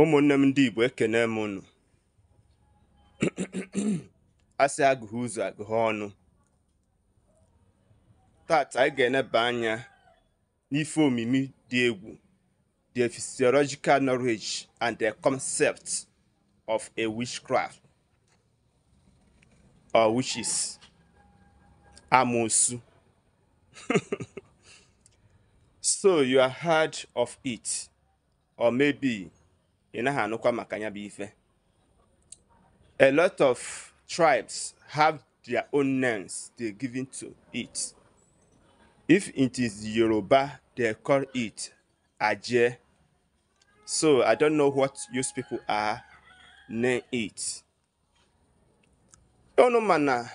ụmụnne m ndị igbo ekene m unu asị agụghị ụzọ agụghị ọnụ tata anyị ga-eneba anya n'ife omimi dị egwu the physiological knowledge and the concept of a witchcraft or witches amosu so you are heard of it or maybe ị maka ya bụ ife a lot of tribes have their own names they given to it if it is yoruba they call it aje so i don't know what those people are name it unu ma na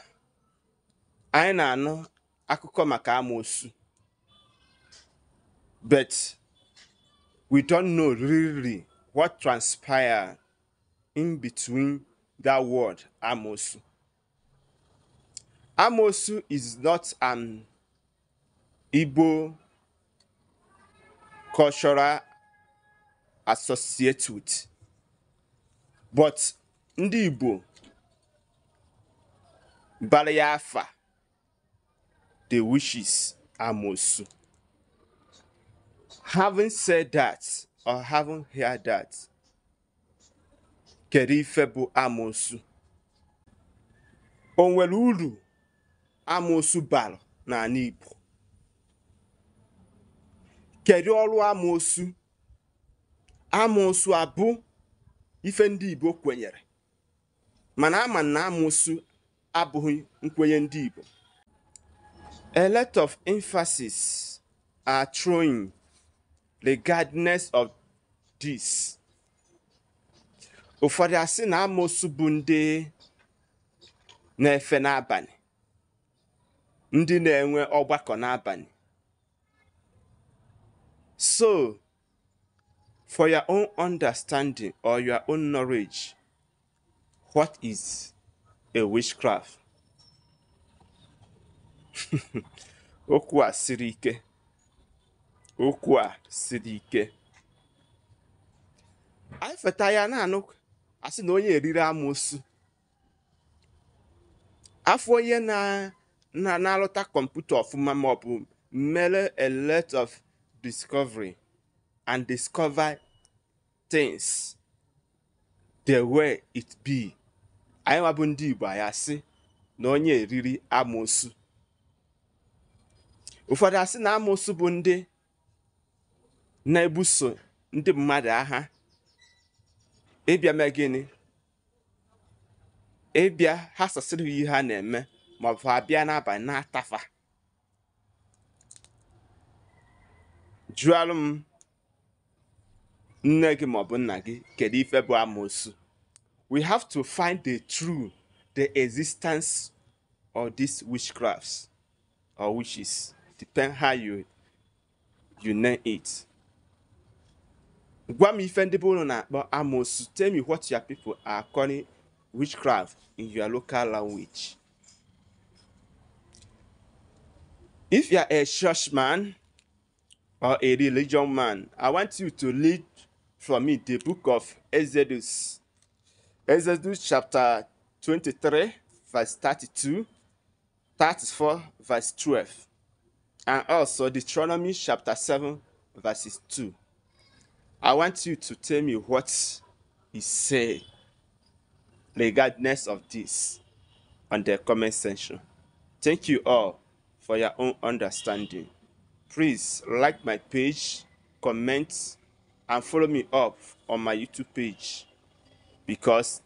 anyị na-anụ akụkọ maka amoosu but we don't know really what transpired in between that word Amosu. Amosu is not an Igbo cultural associate with, but ndị Igbo bara the wishes Amosu. Having said that, I haven't heard that. Kedu ife bụ amoosu? O nwere uru amoosu bara n'ala Igbo? Kedu ọrụ amoosu? Amoosu abụ ife ndị Igbo kwenyere mana ama na amoosu abụghị nkwenye ndị Igbo. A lot of emphasis are thrown regardless of dis ụfọdụ asị na amoosu bụ ndị na-efe n'abalị ndị na-enwe ọgbakọ n'abalị so for your own understanding or your own knowledge what is a witchcraft okwu a siri ike okwu a siri ike anyị feta ya na-anụ asị na onye eriri amoosu afọ onye na-alụta kọmputa ọfụma maọbụ mere a of discovery and discover things the way it be anyị nwabụ ndị Igbo anyị asị na onye eriri amoosu ụfọdụ asị na amoosu bụ ndị na-ebuso ndị mmadụ agha ịbịa mee gịnị ịbịa ha sasịrị ihe ha na-eme ma ọ bụ abịa n'abalị na-atafa jụọrụ m nne gị ma nna gị kedu ife bụ amoosu we have to find the true the existence of these witchcrafts or witches depend how you you name it gwa me ife ndị be unu na-akpọ amosu tell me what your people are calling witchcraft in your local language if you are a churchman or a religion man i want you to read from me the book of exodus exodus chapter 23 verse 32 34 verse 12 and also deuteronomy chapter 7 verses 2 I want you to tell me what he said regardless of this on the comment section. Thank you all for your own understanding. Please like my page, comment, and follow me up on my YouTube page because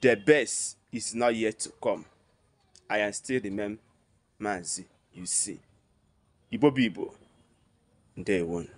the best is not yet to come. I am still the man, Mazi, you see. Ibo Bibo, day one.